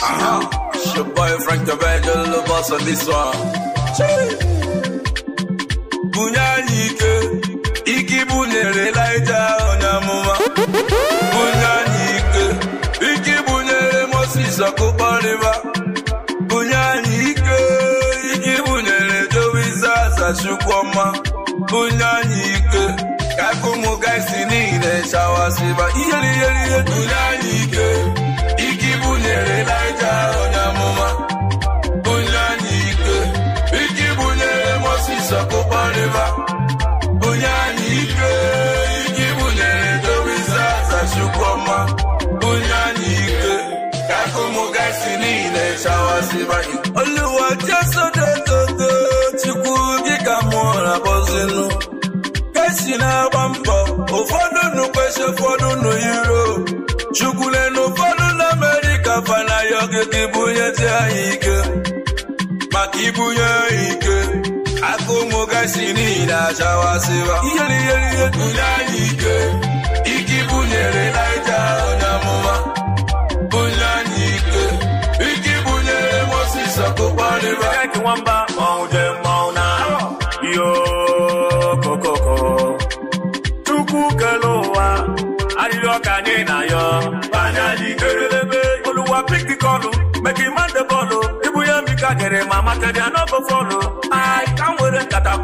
Ah, your boy Frank the Virgil, le boss on this one. Bunyanike, iki bunere laija onyamuma. Bunyanike, iki bunere Moses akubaliba. Bunyanike, iki bunere Jowisa sashukwama. Bunyanike, kakumugaisi nile shawasiba. Iyeli, iyeli, iyeli. Bunyanike. si niile chawasịbaghị oluwa chiasodetogo chukwu gị ka mụọ na bọzinu kesi na-agba mbọ ụfọdụ nụ kwesị ụfọdụ nụ Europe chukwule na ụfọdụ na Amerịka fanaghị ogige ibụnyezi anyị ike maka ibunye ike Akụ ụmụ gasi niile ihe wamba maude mauna yo kokoko chukwukelowa arịrịọka anyị na yo erelebe oluwa pik the call make him the ibu ya mika gere ma materi anọbụ fọlụ ai ka m were nkata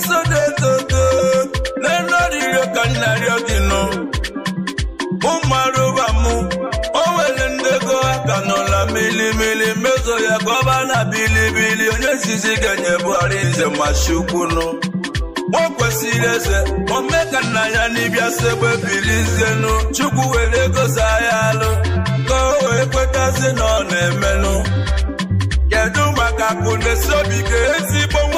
sodetoto nenoririo ka nnarịọ gị nọ ụmụarụba mụ o were ndego aka n'ụlọ milimili mezo ya ka ọba na bilibili onye zizi ga-enye Buhari nze ma chukwunụ o kwesịrị eze ome ka nna ya n'ịbịa segbe bilizenu chukwu were gosa ya alụ ka o kwetazi na na-emenụ kedu maka akụ na-esobi ka ezi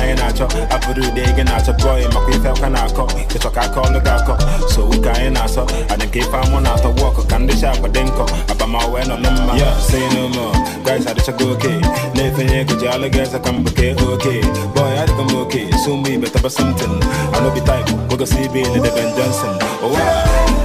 anyị na-achọ abụrụ ụdị ego na-achọ pụọ ị makwa ife ọka na-akọ ịchọ ka aka ọlụ ga-akọ so ụka anyị na-asọ adị nke ife amụ na-atọ wọkụ ka ndị chakwa dị nkọ abamawe nọ na mma ya si n'ụlọ guys adịchago oke na-efenye ego ji alụ ga-eze ka mgbuke oke bọy adịgo m oke so mụ ibe taba somtin anobi type gogosi ibe na deben johnson ụwa oh,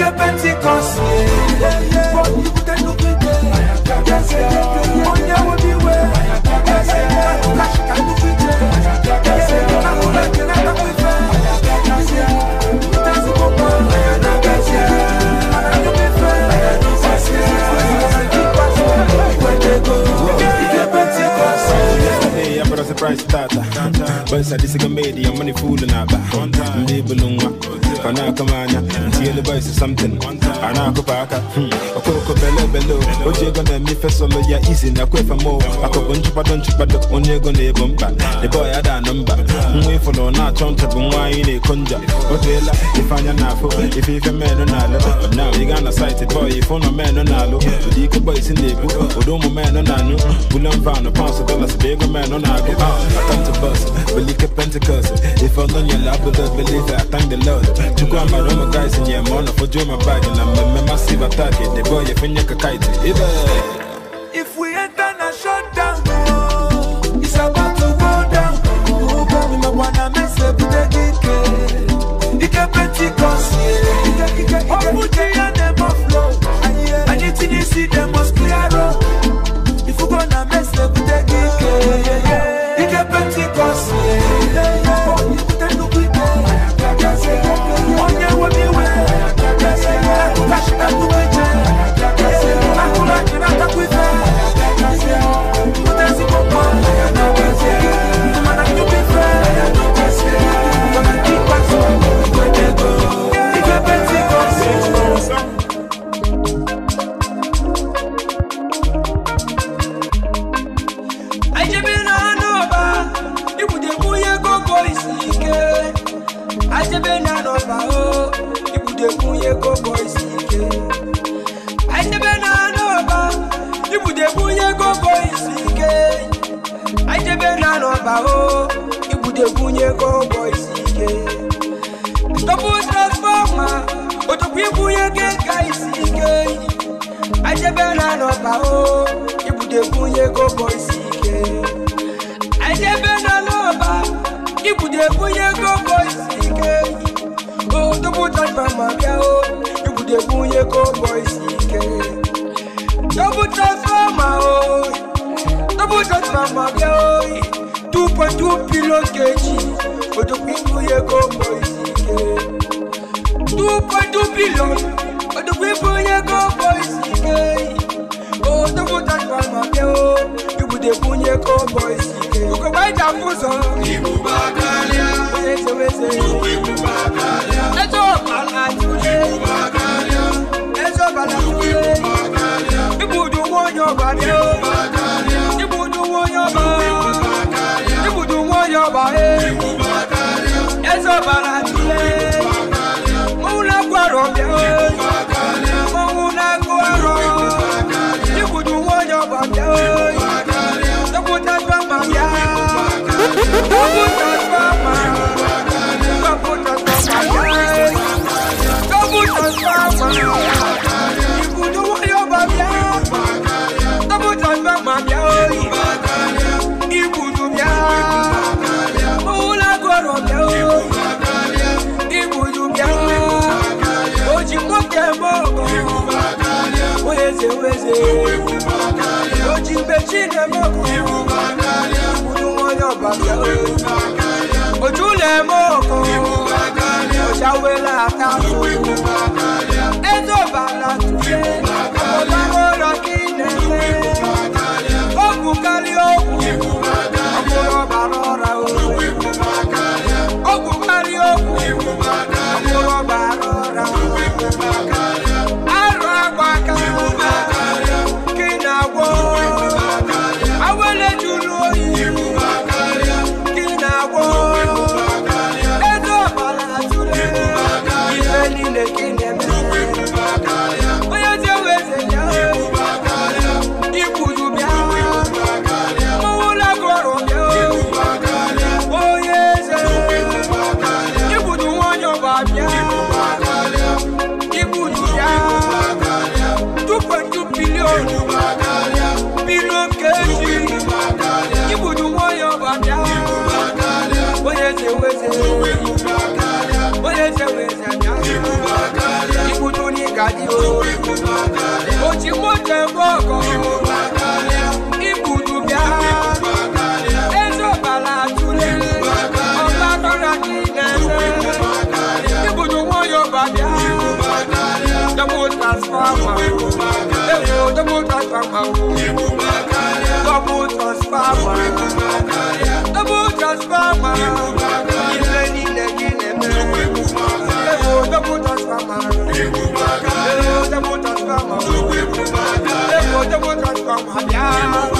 que But you I'm a I'm it's a disagreement. I'm money fooling up. Kana kamanya, ntiele boys is something. Ana kupaka, okoko bele bele. Oje gonna me fe solo ya easy na kwe fa mo. Akogo nchupa don chupa dok onye gonna e bomba. The boy had a number. Mwe hmm, follow na chonta bumwa ine konja. Odela, ifanya nafo, ifife meno nalo. But now you gonna sight it boy, if ono meno nalo. Udiko boys in lebu, odomo meno nano. Bulam vano, pounce dollars, big man on I go out. I come to bust, believe Pentecost. If I'm on your lap, believe I thank the Lord chukua maroma kaisi nyemona fujue mabagi na mmemasiva take deboye fenyeka kaiti ive If we enter na down it's about to go down. Ube mima wana mese bute gike, ike pentecost, ike ike ike. Opuji yana. koko isike ajebe na n'ọba ibute bunye koko isike ajebe na n'ọba o ibute bunye koko isike tọpụ transfọma otokwu ibunye keka isike ajebe na n'ọba o ibute bunye koko isike ajebe na n'ọba ibute bunye koko isike. Double touch by Maria, oh. You could have won your cowboy CK. Double touch by my oh. Double touch by Maria, oh. 2.2 kilo kg. But the people here cowboy CK. two billion. But the people here cowboy CK. Oh, double touch by Maria, oh. dey bunye onye ike ugogbaida ụzọ ọ teweze eze ọkpala Bagalia, Bagalia, chile moku ibukakalia utumoyo Bagalia, ochule moko ibukakalia oshawela tafu ibukakalia ezobala tuye ochikwute bọkọ ibudu bịa eze ọbara atụlele ọgbakọra gị na-eze ibudu nwayọ babịa double transformer ewu double transformer double transformer double transformer. I'm happy.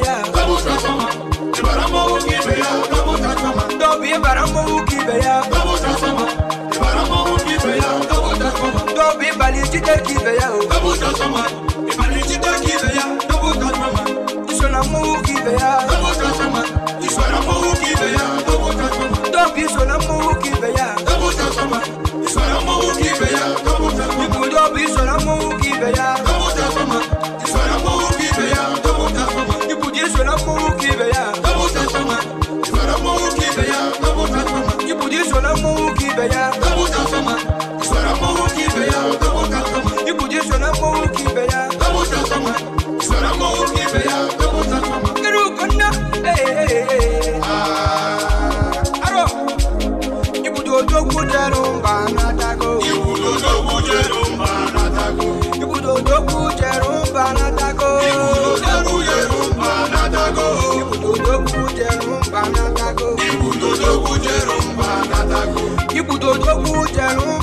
beya kabuta sama ibaramo uki beya kabuta sama dobi ibaramo uki beya kabuta sama ibaramo uki beya kabuta sama dobi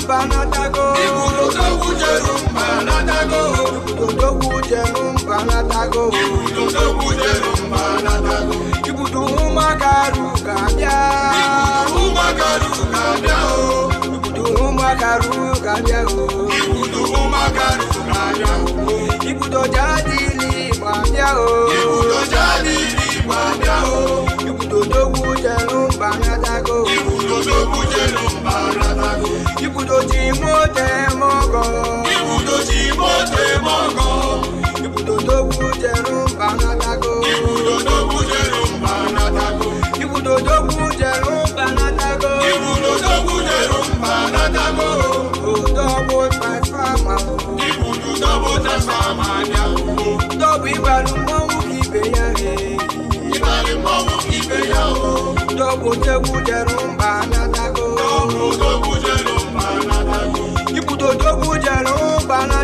mbanatago ikuluka wujeru mbanatago ibudodo wujeru mbanatago ibudodo wujeru mbanatago ibudu umakaru kabia ibudu umakaru kabia o ibudu umakaru kabia o ibudu umakaru kabia o ibudo jadi ni kabia o ibudo jadi eme mọ́tẹ́ mọ́gọ́. Ibùdójì mọ́tẹ́ mọ́gọ́. Ibùdódó bújẹ̀rù bànátàgò. Ibùdódó bújẹ̀rù bànátàgò. Ibùdódó bújẹ̀rù bànátàgò. Ibùdódó bújẹ̀rù bànátàgò. Òdòbó tàfàmà. Ibùdódó tàfàmà ni àwòrán. Dọ́bù ìbàlùmọ́wù kìbè yá rè. Ìbàlùmọ́wù kìbè yá o. Dọ́bù jẹ́kù jẹ̀rù bànátàgò.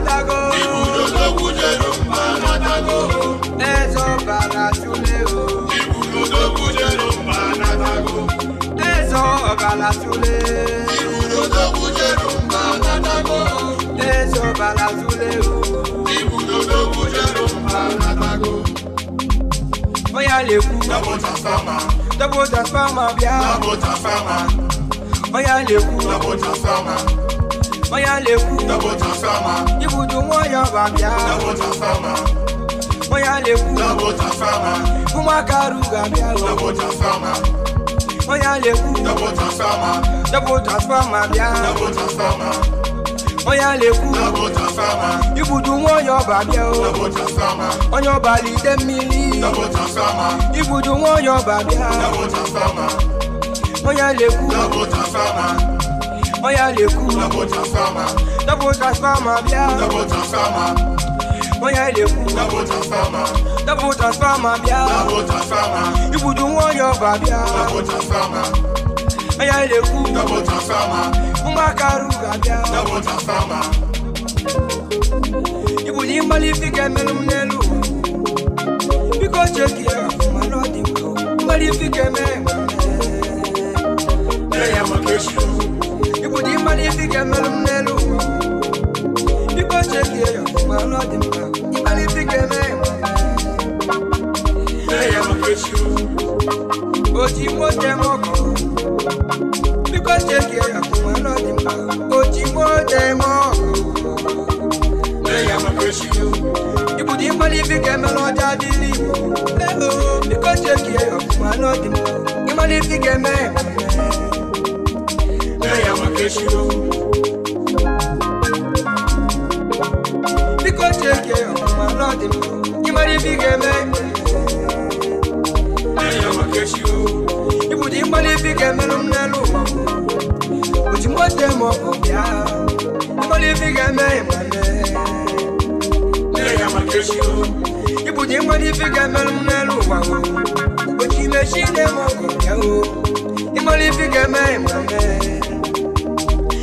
matago. Ibùdó tó kù jẹ́ ló pa matago. Ẹ̀sọ́ bàrà súlé o. Ibùdó tó kù jẹ́ ló pa matago. Ẹ̀sọ́ bàrà súlé. Ibùdó tó kù jẹ́ ló pa matago. Ẹ̀sọ́ bàrà súlé o. Ibùdó tó kù jẹ́ ló pa matago. Bóyá lè kú. Double transformer. Double transformer bíá. Double transformer. Bóyá lè kú. Double transformer. Oya lewu. Double transformer. Ibudu wọn yan bàbíà. Double transformer. Oya lewu. Double transformer. Kumakaru gàbíà o. Double transformer. Oya lewu. Double transformer. Double transformer bíà. Double transformer. Oya lewu. Double transformer. Ibudu wọn yan bàbíà o. Double transformer. Oyan bali demili. Double transformer. Ibudu wọn yan bàbíà. Double transformer. Oya lewu. Double transformer. Oya le ku. Double transformer. Double transformer bia. Double transformer. Oya le ku. Double transformer. Double transformer bia. Double transformer. Ibudu wọn yọ ba bia. Double transformer. Oya le ku. Double transformer. Mbakaru ga bia. Double transformer. Ibuli mbali fike melu mnelu. Biko cheki ya kumalodi mko. Mbali fike mema. Eya makeshi mmadụ ibi ga-emelụ m n'elu ụwa biko chekie ya ọfụma n'ọdị mma ịmalite ga-eme ya oji mote m ọkọ biko chekie ya ọfụma n'ọdị mma oji mote m ọkọ ibudo ịmara ibi ga ya makeshiro biko cheke ọmụma lọdị m ịmara ife ị ga-eme ya makeshiro ịbụdị ịmara ife ị ga-emelụ m n'elu ụwa oji mgbote m ọkụ bịa ịmara ife ị ga-eme ịmame ya makeshiro ịbụdị ịmara ife ị ga-emelụ m n'elu ụwa oji mechi nne m ọkụ bịa o ịmara ife ị ga-eme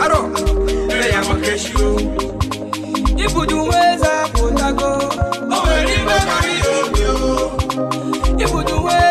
aro ere ya makeshi o ibudu weza potago o eri be mari o mi o ibudu weza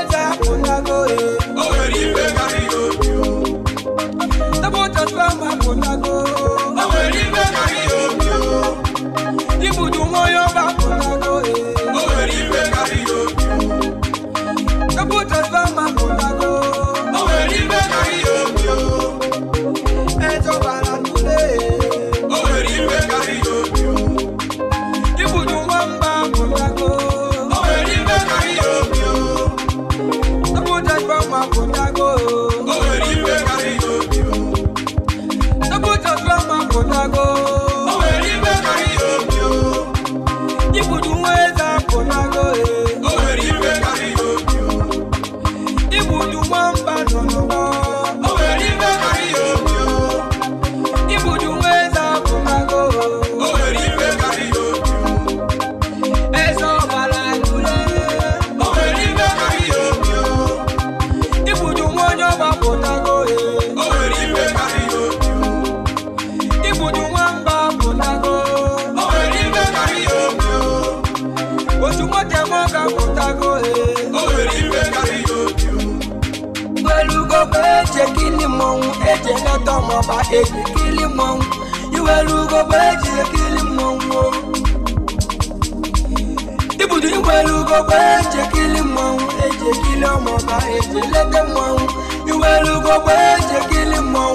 kweje kilimo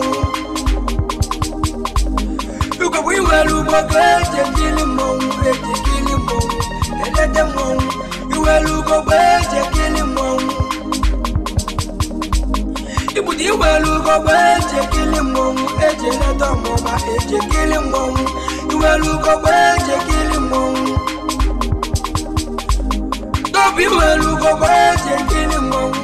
Yuko wiwelu kwa kweje kilimo Kweje kilimo Elete mo Iwelu kwa kweje kilimo Ibudi iwelu kwa kweje kilimo Eje leta mo ma eje kilimo Iwelu kwa kweje kilimo Dobi iwelu kwa kweje kilimo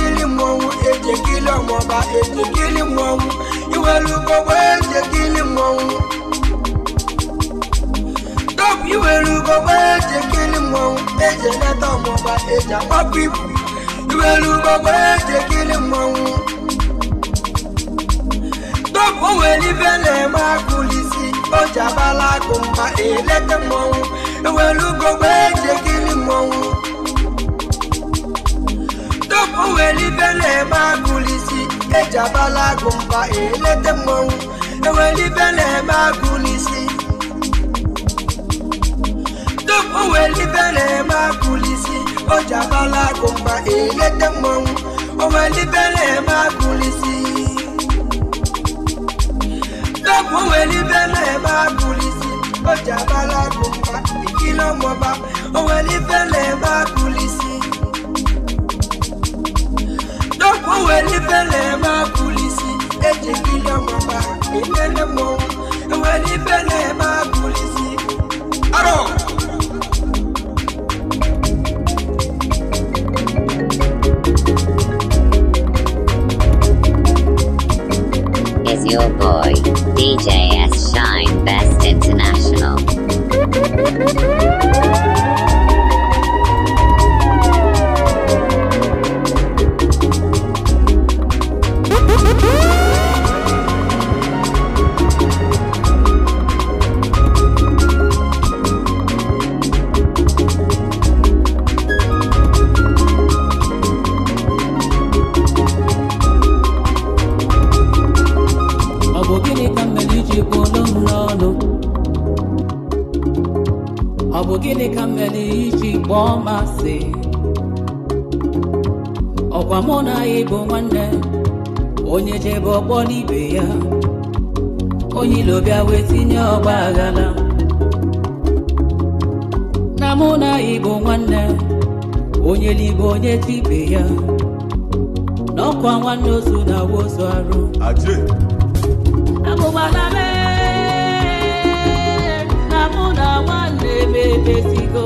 mọ ohun èjè kí lọ́mọ bá èjè kí lè mọ ohun ìwé lu gbogbo èjè kí lè mọ ohun. Dọ́pù ìwé lu gbogbo èjè kí lè mọ ohun èjè lẹ́tọ̀ mọ bá èjè àpọ̀ pípù ìwé lu gbogbo èjè kí lè mọ ohun. òwe níbẹ̀ lẹ̀ máa kulì sí ọjà bá lágùn bá èlẹ́tẹ̀ mọ ohun owelibele ma kulisi ejabala gumba elete mmọnwụ ewelibele ma kulisi tum owelibele ma kulisi ojabala gumba elete mmọnwụ owelibele ma kulisi tum owelibele ma kulisi ojabala gumba ìkìlọ̀ mọba owelibele ma kulisi. من النمو ولبنى ọkwa mụ na ya bụ nwanne onye jebe ọkpọ n'ibe ya onye ilo bịa wee tinye ọgba aghala. na mụ na ya bụ nwanne onye libe onye tibe ya na ọkwa nwanne otu na awa arụ agụgbala mee na mụ na nwanne m ebesigo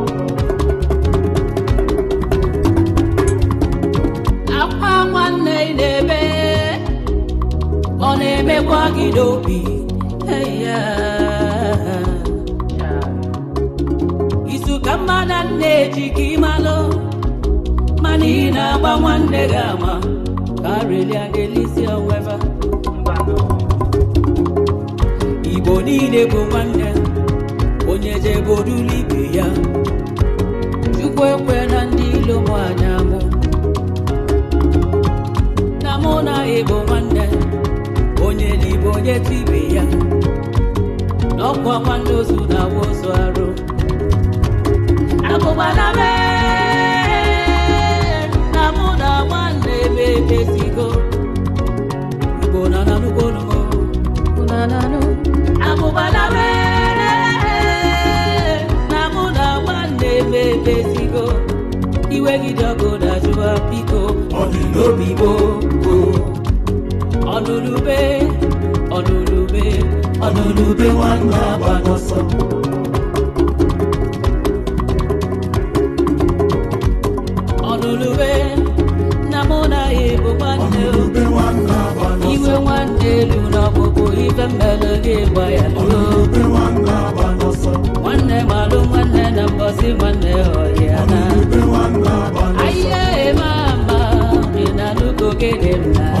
Akidobi. Hey, yeah. Isukama na nneji kimalo. Mani na agba nwanne gị ama. Karịrị adelisi oweva. Igbo niile bụ nwanne. Onye jebe orulu ibe ya. Chukwu ekwe na ndị ilo m anya ga-eche ibe ya n'ọkụ ọkwa ndị ozu na-awa ozu arụ abụgbana na awa na na nwanne ebe ebezigo igbo na nanugbo abụgbana na mụ na nwanne ebe ebezigo iwe gị dị ọgụ na jụwa biko ọdịnobi gboo ọnụnụ bee olulube olulube wanga bagoso olulube namona ebo ebobane iwe wande luna n'ọgbụgbụ ife mmelụ gị gba wanga luo nwanne malụ nwanne na mbọsi nwanne ọhịana ahịa eme ama ị na nugo gịdị mna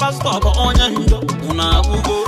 pastọ bụ onye ndo unu agwụgo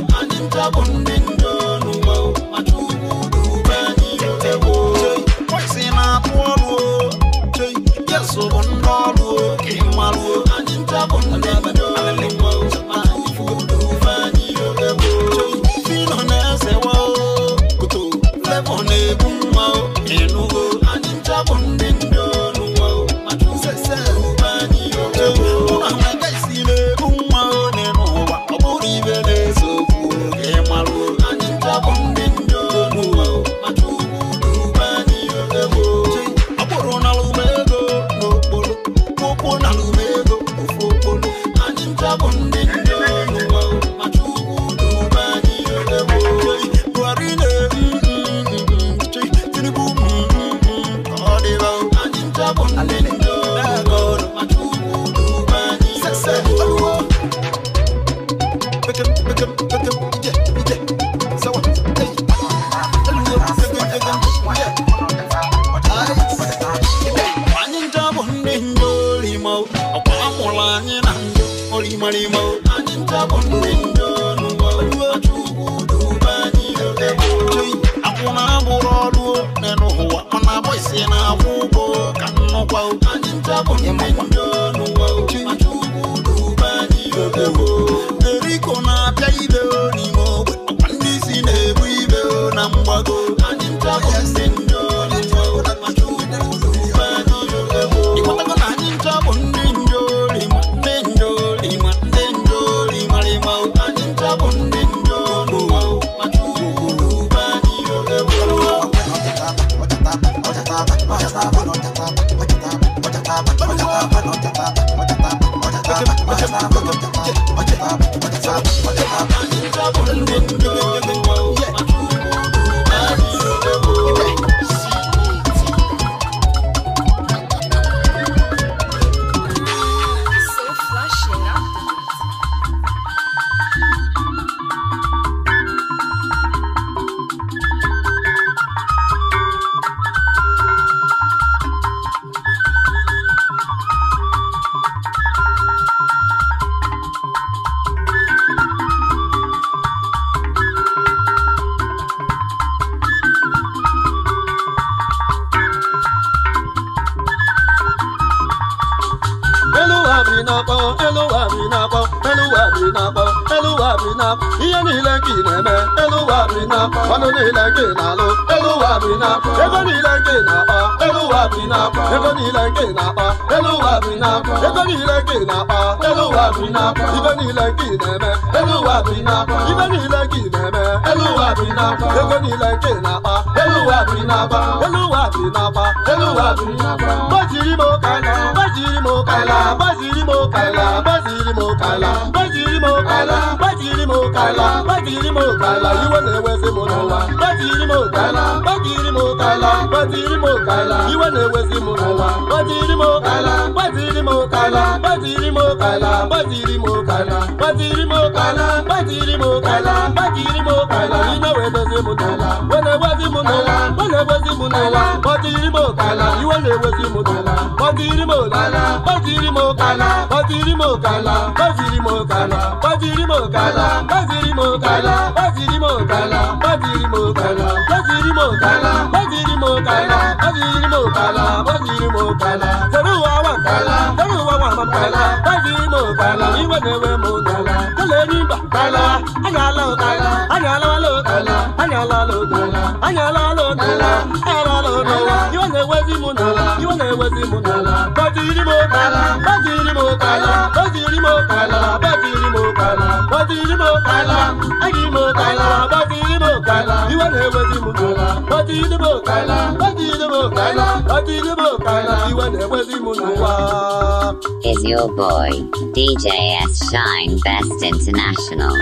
eluwa bi na-akpọ eluwa bi na-akpọ eluwa bi na ihe niile ka ị na elu eluwa bi na ọnụ niile ka ị na-alụ eluwa bi na ego niile ka ị na elu eluwa bi na ego niile ka ị na-akpa eluwa bi na ego niile ka ị na-akpa eluwa bi na ibe niile ka ị na-eme eluwa bi na ibe niile ka ị na-eme eluwa bi na ego niile ka ị na-akpa olúwa mi náà bá olúwa mi náà bá olúwa mi náà bá. mo kàlà bọ́sì mo kàlà bọ́sì mo kàlà bọ́sì mo kàlà bọ́sì mo kàlà bọ́sì mo kàlà bọ́sì rí mo kàlà ìwọ náà wẹ́sẹ̀ mo náà wá bọ́sì mo kàlà bọ́sì mo kàlà bọ́sì mo kàlà ìwọ náà wẹ́sẹ̀ mo náà wá bọ́sì rí mo kàlà bọ́sì mo kàlà bọ́sì mo kàlà bọ́sì mo kàlà bọ́sì mo kàlà bọ́sì mo kàlà bọ́sì rí mo kàlà ìnáwó ẹ̀dọ́sẹ̀ mo náà wá wọ́n náà wá na-ewezi m n'ala kpọtiri m ụkala iwe na-ewezi m n'ala kpọtiri m ụkala kpọtiri m ụkala kpọtiri m ụkala kpọtiri m ụkala kpọtiri m ụkala kpọtiri m ụkala kpọtiri m ụkala kpọtiri m ụkala kpọtiri m ụkala kpọtiri m ụkala kpọtiri m ụkala kpọtiri m ụkala tere ụwa wa nkala tere ụwa wa ma nkala kpọtiri m ụkala iwe na-ewe m n'ala kelee n'ịba nkala anya ala ụkala anya alala ụkala anya alala ụkala anya ala Is your boy DJ S Shine Best International?